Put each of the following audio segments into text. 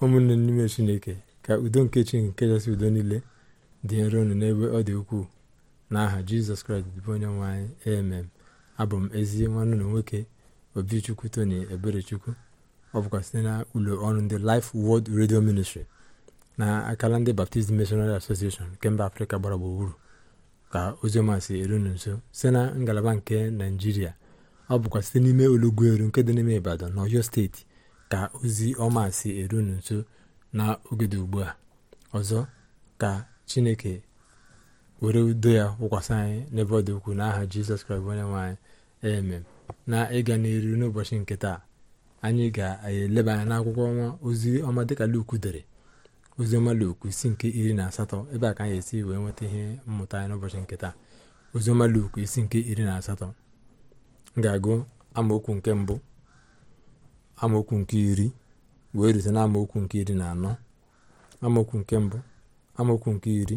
ụmụnne n'ime chineke ka udo nke chi nke kachasị udo niile dị nro unu n'ebe ọ dị ukwuu n'aha jizọs kraịst dịbụ onye nwe anyị amen abụ m ezi nwanne na nwoke obichukwu tony eberechukwu ọ bụkwa site na ụlọ ọrụ ndị life world radio ministry na akala ndị baptist missionary association nke mba afrịka gbara gburugburu ka ozioma si eru nso site na ngalaba nke naijiria ọ bụkwa site n'ime olugbu eru nke dị n'ime ibadan na ọyọ steeti ka ozi ọma si eru unu nso n'oge dị ugbu a ọzọ ka chineke were udo ya wụkwasị anyị n'ebe ọ dị ukwu n'aha jizọs kraịst onye nwe anyị emem na ịga n'eru n'ụbọchị nke taa anyị ga-eleba anya n'akwụkwọ ọnwa ozi ọma dịka luku dere ozi ọma Luk isi nke iri na asatọ ebe a ka anyị esi wee nweta ihe mmụta anyị n'ụbọchị nke taa ozi ọma Luk isi nke iri na asatọ m ga-agụ amaokwu nke mbụ amaokwu nke iri wee rute na amaokwu nke iri na anọ amaokwu nke mbụ amaokwu nke iri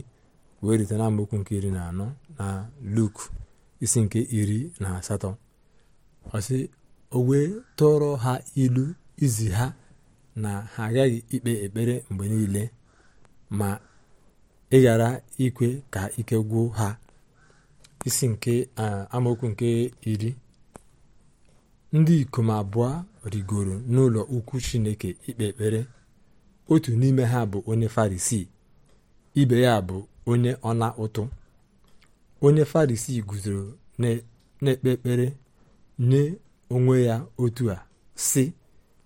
wee rute na amaokwu nke iri na anọ na luk isi nke iri na asatọ ọsị o wee tụrụ ha ilu izi ha na ha agaghị ikpe ekpere mgbe niile ma ị ghara ikwe ka ike gwụ ha isi nke amaokwu nke iri ndị ikom abụọ rigoro n'ụlọ ukwu chineke ikpe ekpere otu n'ime ha bụ onye farisi ibe ya bụ onye ọna ụtụ onye farisi guzoro na-ekpe ekpere nye onwe ya otu a sị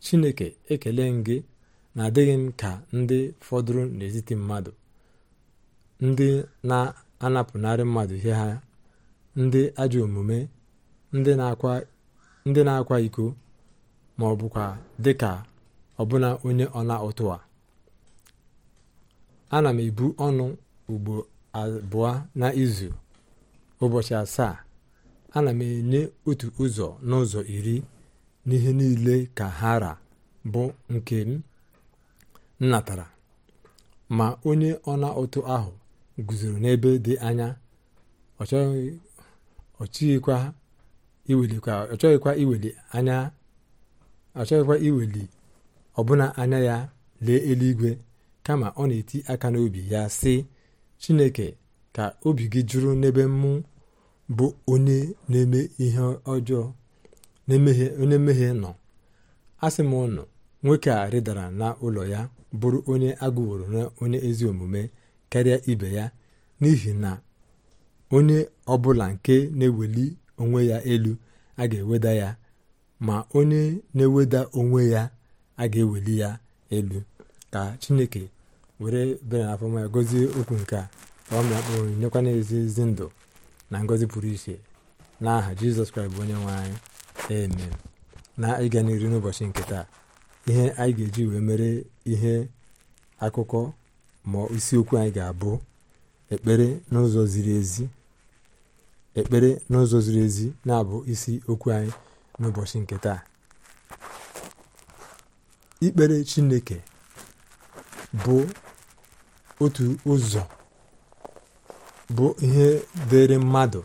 chineke ekele m gị na adịghị m ka ndị fọdụrụ n'etiti mmadụ ndị na-anapụnarị mmadụ ihe ha ndị ajọ omume ndị na-akwa ndị na-akwa iko ma ọ bụkwa dịka ọbụna onye ọna ụtụ a ana m ebu ọnụ ugbo abụọ n'izu ụbọchị asaa ana m enye otu ụzọ n'ụzọ iri n'ihe niile ka hara bụ nke m natara ma onye ọna ụtụ ahụ guzoro n'ebe dị anya ọ ha. iwelikwa iweli anya ọ iweli ọbụna anya ya lee eluigwe kama ọ na-eti aka n'obi ya sị chineke ka obi gị jụrụ n'ebe mụ bụ onye na-eme ihe ọjọọ onye mmehie nọ asị m ụnụ nwoke a rịdara n'ụlọ ya bụrụ onye agụworo na onye ezi omume karịa ibe ya n'ihi na onye ọbụla nke na-eweli onwe ya elu a ga-eweda ya ma onye na-eweda onwe ya a ga-eweli ya elu ka chineke were bere na afọma ya gozie okwu nke a ka ọ mịakpụrụ nyekwana ezi ezi ndụ na ngozi pụrụ iche n'aha jizọs kraịst bụ onye nwe anyị eme na ịga n'iru n'ụbọchị nke taa ihe anyị ga-eji wee mere ihe akụkọ ma isiokwu anyị ga-abụ ekpere n'ụzọ ziri ezi ekpere n'ụzọ ziri ezi na-abụ isi okwu anyị n'ụbọchị nke taa ikpere chineke bụ otu ụzọ bụ ihe dịrị mmadụ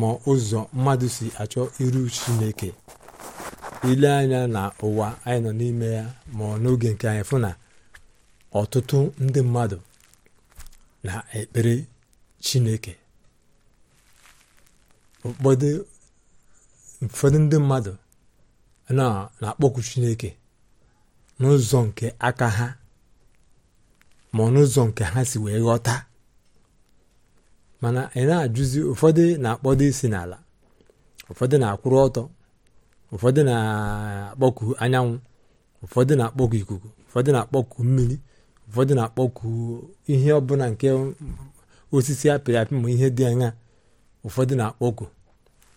ma ụzọ mmadụ si achọ iru chineke ile anya na ụwa anyị nọ n'ime ya ma n'oge nke anyị fụ na ọtụtụ ndị mmadụ na-ekpere chineke ụfọdụ uh, ụfọdụ ndị mmadụ na-akpọkwu chineke n'ụzọ nke aka ha ma n'ụzọ nke ha si wee ghọta mana ị e na-ajụzi ụfọdụ na-akpọdo isi n'ala ụfọdụ na-akwụrụ ọtọ ụfọdụ na-akpọku anyanwụ ụfọdụ na-akpọku ikuku ụfọdụ na-akpọku mmiri ụfọdụ na-akpọku ihe ọbụla nke osisi apịrị apị ma ihe dị anya ụfọdụ na-akpọku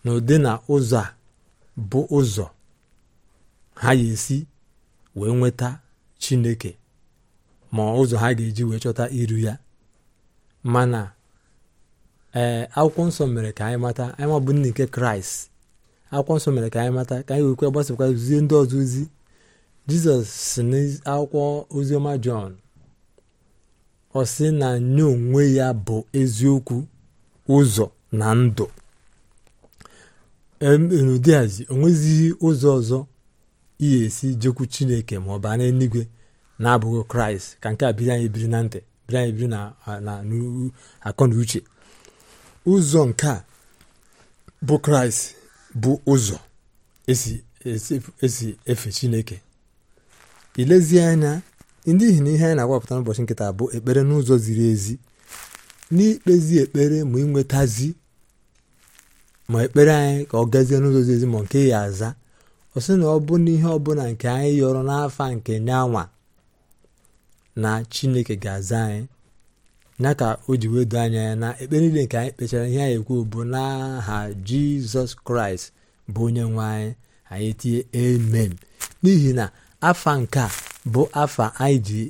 na ụdị na ụzọ a bụ ụzọ ha ya esi wee nweta chineke ma ụzọ ha ga-eji wee chọta iru ya mana ee akwụkwọ nsọ mere ka anyị mata anyị mabụ nne nke kraịst akwụkwọ nsọ mere ka anyị mata ka anyị wekwe gbasakwa zie ndị ọzọ ozi jizọs si n'akwụkwọ oziọma jọn ọ sị na nye onwe ya bụ eziokwu ụzọ na ndụ n'ụdịazi onwezighị ụzọ ọzọ iyi esi jekwu chineke ma ọ baa n'eluigwe na-abụghị kraịst ka nke a biri anyị biri na ntị biri anyị biri na akọ na uche ụzọ nke a bụ kraịst bụ ụzọ esi efe chineke Ilezi anya n'ihi na ihe anyị na-agwapụta n'ụbọchị nkịta bụ ekpere n'ụzọ ziri ezi n'ikpezi ekpere ma inwetazi ma ekpere anyị ka ọ gazie n'ụzọ zizi ma nke ya aza ọ sị na ọ bụ na ihe ọbụla nke anyị yọrọ n'afa nke nyanwa na chineke ga-aza anyị ya ka o ji wedo anya ya na ekpere niile nke anyị kpechara ihe anyị ekwu bụ n'aha jizọs kraịst bụ onye nwe anyị anyị tinye amen n'ihi na afa nke a bụ afa anyị ji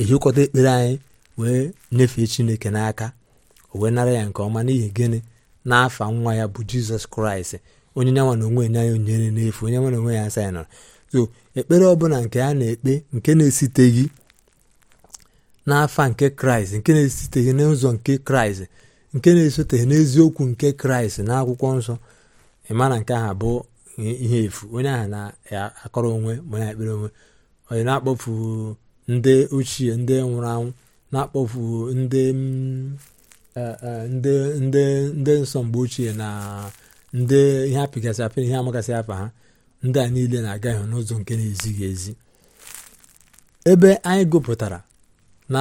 ehikọta ekpere anyị wee nyefee chineke n'aka o wee nara ya nke ọma n'ihi gịnị n'afa nwa ya bụ jizọs kraịst onye nyanwa na onwe ya onyere n'efu onye nwa na onwe ya asa ya nọrọ so ekpere ọbụla nke a na-ekpe nke na-esiteghị n'afa nke kraịst nke na-esiteghị n'ụzọ nke kraịst nke na-esoteghị n'eziokwu nke kraịst na akwụkwọ nsọ ịma nke ahụ bụ ihe efu onye ahụ na-akọrọ onwe ma na-ekpere onwe onye na-akpọfu ndị ochie ndị nwụrụ anwụ na-akpọfu ndị e, e, ndị ndị ndị nsọ mgbe ochie na ndị ihe apịgasị apịrị ihe amagasị apa ha ndị a niile na-aga ihu n'ụzọ nke na-ezighị ezi ebe anyị gụpụtara na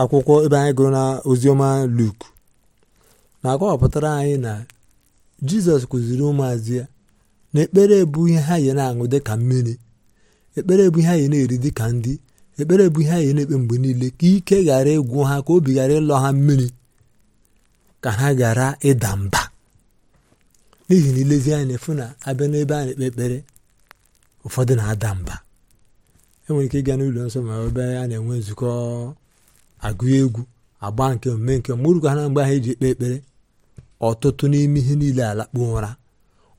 akwụkwọ ebe anyị gụrụ na oziọma luk na-akọwapụtara anyị na jizọs kụziri ụmụazị ya na ekpere bụ ihe ha yi na-aṅụ dịka mmiri ekpere bụ ihe ha yi na-eri dịka ndị ekpere bụ ihe anyị na-ekpe mgbe niile ka ike ghara ịgwụ ha ka obi ghara ịlọ ha mmiri ka ha ghara ịda mba n'ihi na ilezi anya efu na abịa n'ebe a na-ekpe ekpere ụfọdụ na-ada mba enwere ike ịga n'ụlọ nsọ ma ebe a na-enwe nzukọ agụ egwu agba nke omume nke mụrụkwa ha na mgbe ahụ eji ekpe ekpere ọtụtụ n'ime ihe niile alakpuo ụra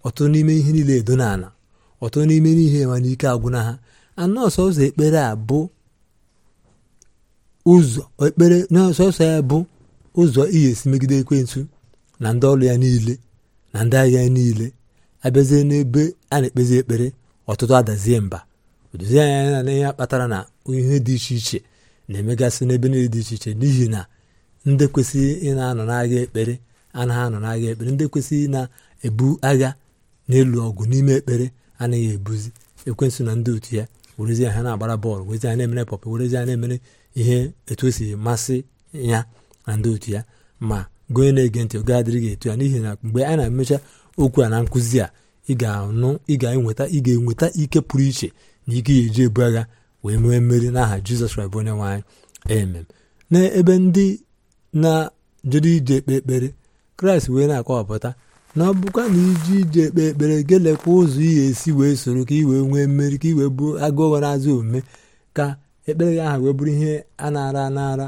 ọtụtụ n'ime ihe niile edo n'ala ọtụtụ n'ime n'ihe ike n'ike agwụna ha anọọsọ ụzọ ekpere a bụ ụzọ ekpere n'ọsọsọ ya bụ ụzọ iyi esi megide ekwentụ na ndị ọrụ ya niile na ndị agha ya niile abịazie n'ebe a na-ekpezi ekpere ọtụtụ adazie mba odozie anya ya na ihe kpatara na ihe dị iche iche na-emegasị n'ebe niile dị iche iche n'ihi na ndị kwesịghị ị na-anọ ekpere ekpere anaghị anọ agha ekpere ndị kwesịghị na-ebu agha n'elu ọgụ n'ime ekpere anaghị ebuzi ekwensụ na ndị otu ya werezi ha na-agbara bọọlụ werezi ha na-emere pọpụ werezi ha na-emere ihe etu o si masị ya na ndị otu ya ma gonye onye na-ege ntị oge adịrịghị etu ya n'ihi na mgbe a na-emecha okwu a na nkụzi a ị ga-anụ ị ga-enweta ị ga-enweta ike pụrụ iche na ike ya eji ebu agha wee nwee mmeri n'aha jizọs kraịst onye nwaanyị anyị emem n'ebe ndị na-jere ije ekpe ekpere kraịst wee na-akọwapụta na ọ bụkwa na iji ije ekpe ekpere gelekwa ụzọ ị ga-esi wee soro ka ị wee nwee mmeri ka ị wee bụ agụụ na-azụ omume ka ekpere gị aha wee bụrụ ihe a na-ara anara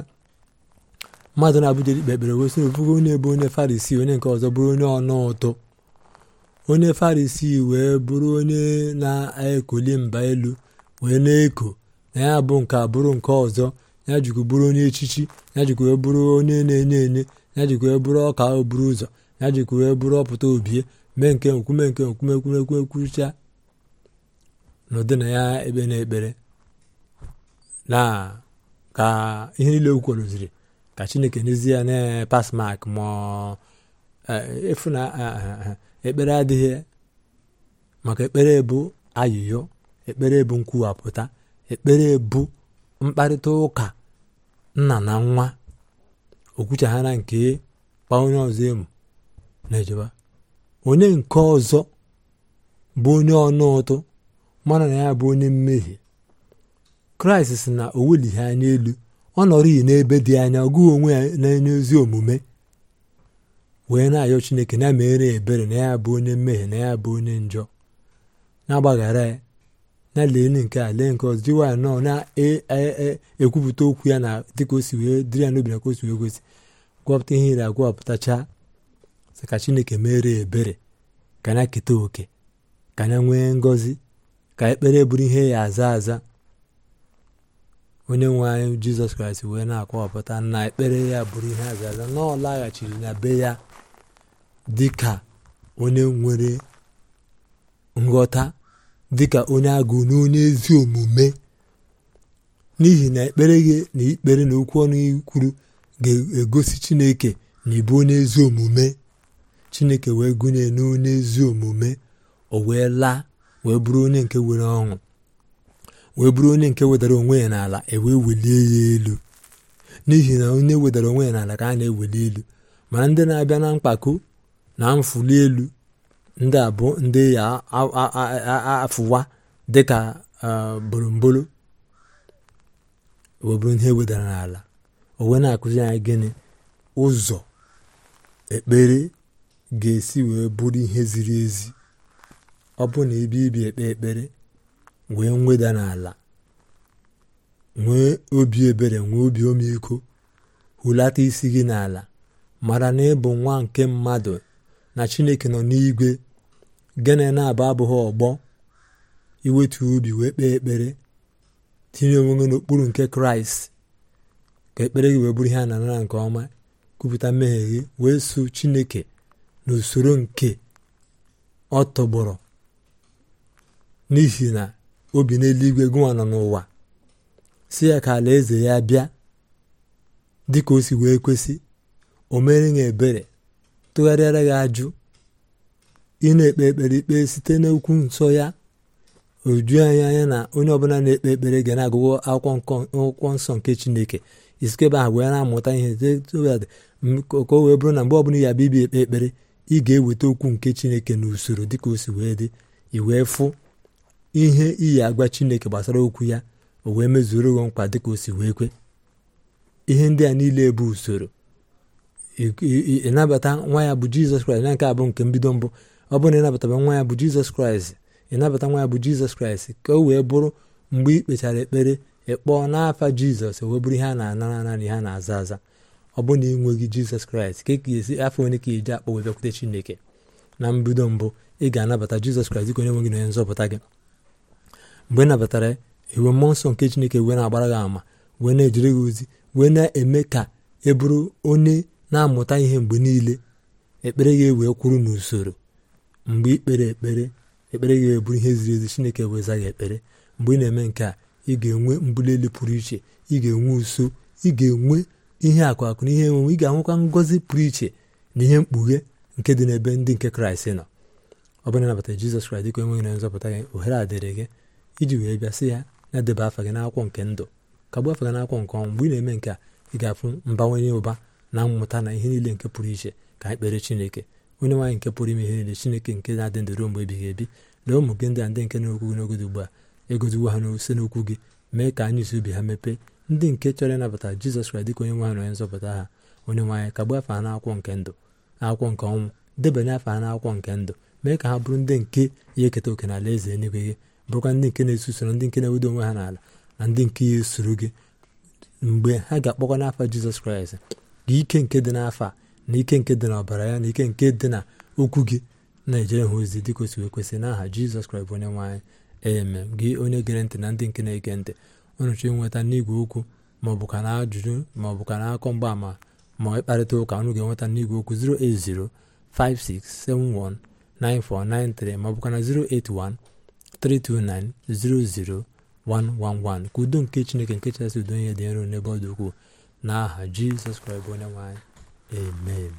mmadụ na-abụja dikpe ekpere wee sị ofugo onye bụ onye farisi onye nke ọzọ bụrụ onye ọnụ ụtọ onye farisi wee bụrụ onye na-ekoli mba elu wee na-eko na ya bụ nke abụrụ nke ọzọ ya jikwa bụrụ onye echichi ya jikwa wee bụrụ onye na-enye enye ya jikwa wee bụrụ ọka oburu ụzọ ya jikwa wee bụrụ ọpụta obie mee nke nkume nke nkume ekwumekwumekwucha n'ụdị na ya ekpe na ekpere na ka ihe niile okwu kwurụziri ka chineke n'ezie na pass mak ma e, efu na ekpere adịghị maka ekpere bụ ayịyo ekpere bụ nkwuwapụta ekpere bụ mkparịta ụka nna na nwa okwuchaghara nke kpa onye ọzọ emu na onye nke ọzọ bụ onye ọnụ ụtụ mana na ya bụ onye mmehie kraịst si na o welighị anya elu ọ nọrịghị n'ebe dị anya ọgụ onwe ya na-enye ozi omume wee na-ayọ chineke na mere ebere na ya bụ onye mmehie na ya bụ onye njọ na-agbaghara ya na lee nke a lee nke ọzọ jiwa ya nọọ na-ekwupụta e, e, e, okwu ya na dịka o si wee dịrị ya n'obi na ka o si wee gosi gwọpụta ihe ire agwọpụtachaa sị ka chineke mere ebere ka na keta oke ka na nwee ngọzi ka ekpere bụrụ ihe ya aza aza onye nwe anyị jizọs kraịst wee na-akọwapụta na ekpere ya bụrụ ihe a ga na ọ laghachiri na be ya dị ka onye nwere nghọta dịka onye agụụ na onye ezi omume n'ihi na ekpere gị na ikpere na okwu ọnụ kwuru ga-egosi chineke na ịbụ onye ezi omume chineke wee gụnye n'onye ezi omume o wee laa wee bụrụ onye nke nwere ọṅụ wee bụrụ onye nke wedara onwe ya n'ala ewee welie ya elu n'ihi na onye wedara onwe ya n'ala ka a na-eweli elu mana ndị na-abịa na mkpako na mfụli elu ndị a bụ ndị ya afụwa dịka bolombolo wee bụrụ ihe wedara n'ala owe na-akụzi anyị gịnị ụzọ ekpere ga-esi wee bụrụ ihe ziri ezi ọ bụ na ebe ibi ekpe ekpere nwee mweda n'ala nwee obi ebere nwee obi omeiko hụlata isi gị n'ala mara na ịbụ nwa nke mmadụ na chineke nọ n'igwe gene na-abụ abụghị ọgbọ iwetu obi wee kpee ekpere tinye onwe n'okpuru nke kraịst ka ekpere gị wee bụrụ ihe a na nke ọma kwupụta mmehie gị wee so chineke n'usoro nke ọ tọgbọrọ n'ihi na obi n'eluigwe gụnwa nọ n'ụwa si ya ka alaeze ya bịa dị ka o si wee kwesị o mere ya ebere tụgharịara ya ajụ ị na-ekpe ekpere ikpe site n'okwu nsọ ya oju anya anya na onye ọbụla na-ekpe ekpere ga na-agụgụ akwụkwọ nsọ nke chineke isikebe ahụ wee na-amụta ihe ka o wee bụrụ na mgbe ọbụla ya bịa ibi ekpe ekpere ị ga-eweta okwu nke chineke n'usoro dịka o si wee dị i wee fụ ihe iyi agwa chineke gbasara okwu ya o wee mezuru ụgwọ nkwa dịka o si wee kwe ihe ndị a niile bụ usoro ịnabata nwa ya bụ jizọs kraịst na nke abụ nke mbido mbụ ọ bụrụ na ịnabataba nwa ya bụ jizọs kraịst ịnabata nwa ya bụ jizọs kraịst ka o wee bụrụ mgbe ị kpechara ekpere ịkpọọ n'afa jizọs wee bụrụ ihe a na-anara anara ihe a na-aza aza ọ bụrụ na ị nweghị jizọs kraịst ka e ka ga-esi afọ onye ka iji akpọ wee bịakwute chineke na mbido mbụ ị ga-anabata jizọs kraịst onye nwe gị na onye nzọpụta gị mgbe ị e nabatara iwe e mmụọ nsọ nke chineke wee na-agbara gị ama wee na-ejere gị ozi wee na-eme ka ị e bụrụ onye na-amụta ihe mgbe niile ekpere gị wee kwụrụ n'usoro mgbe ikpere ekpere ekpere gị wee ihe ziri ezi chineke wee za gị ekpere mgbe ị na-eme nke a ị ga-enwe mbuli elu pụrụ iche ị ga-enwe uso ị ga-enwe ihe akụ akụ na ihe enwenwe ị ga-ahụkwa ngọzi pụrụ iche na ihe mkpughe nke dị n'ebe ndị nke kraịst nọ ọ bụrụ na nabata jizọs kraịst dịka enweghị na nzọpụta gị ohere a dịrị gị iji wee bịa sị ya na-edeba afa gị n'akwụkwọ nke ndụ ka gbuo afa gị n'akwụkwọ nke ọnwụ mgbe ị na-eme nke a ị ga-afụ mbawanye ụba na mmụta na ihe niile nke pụrụ iche ka anyị kpere chineke onye nwaanyị nke pụrụ ime ihe niile chineke nke na-adị ndụ ruo mgbe ebighị ebi lee ụmụ gị ndị a ndị nke na-okwu gị n'ogodo ugbu a egoziwo ha n'ose n'okwu gị mee ka anyị ubi ha mepee ndị nke chọrọ ịnabata jizọs kraịst dịka onye nwe ha na nzọpụta ha onye nwaanyị ka gbuo afa ha n'akwụkwọ nke ndụ akwụkwọ nke ọnwụ debanye afa ha n'akwụkwọ nke ndụ mee ka ha bụrụ ndị nke ya eketa oke n'ala eze eluigwe gị bụrụkwa ndị nke na-eso usoro ndị nke na-ewedo onwe ha n'ala na ndị nke ya esoro gị mgbe ha ga-akpọkwa n'afa jizọs kraịst ike nke dị n'afa na ike nke dị ọbara ya na ike nke dị na okwu gị na-ejere ha ozi dị kwesịrị ekwesị n'aha jizọs kraịst bụ onye nwaanyị eme gị onye gere ntị na ndị nke na-ege ntị unu nweta n'igwe okwu maọbụ ka na ajụjụ maọbụ ka na akọ mgbaama ma ịkparịta ụka ọnụ ga-enweta n'igwe okwu 08056719493 maọbụ ka na 081 329-00111 ka udo nke chineke nke chasị udo ihe dị nro n'ebe ọ dị ukwuu n'aha jizọs kraịst bụ onye nwanyị. amen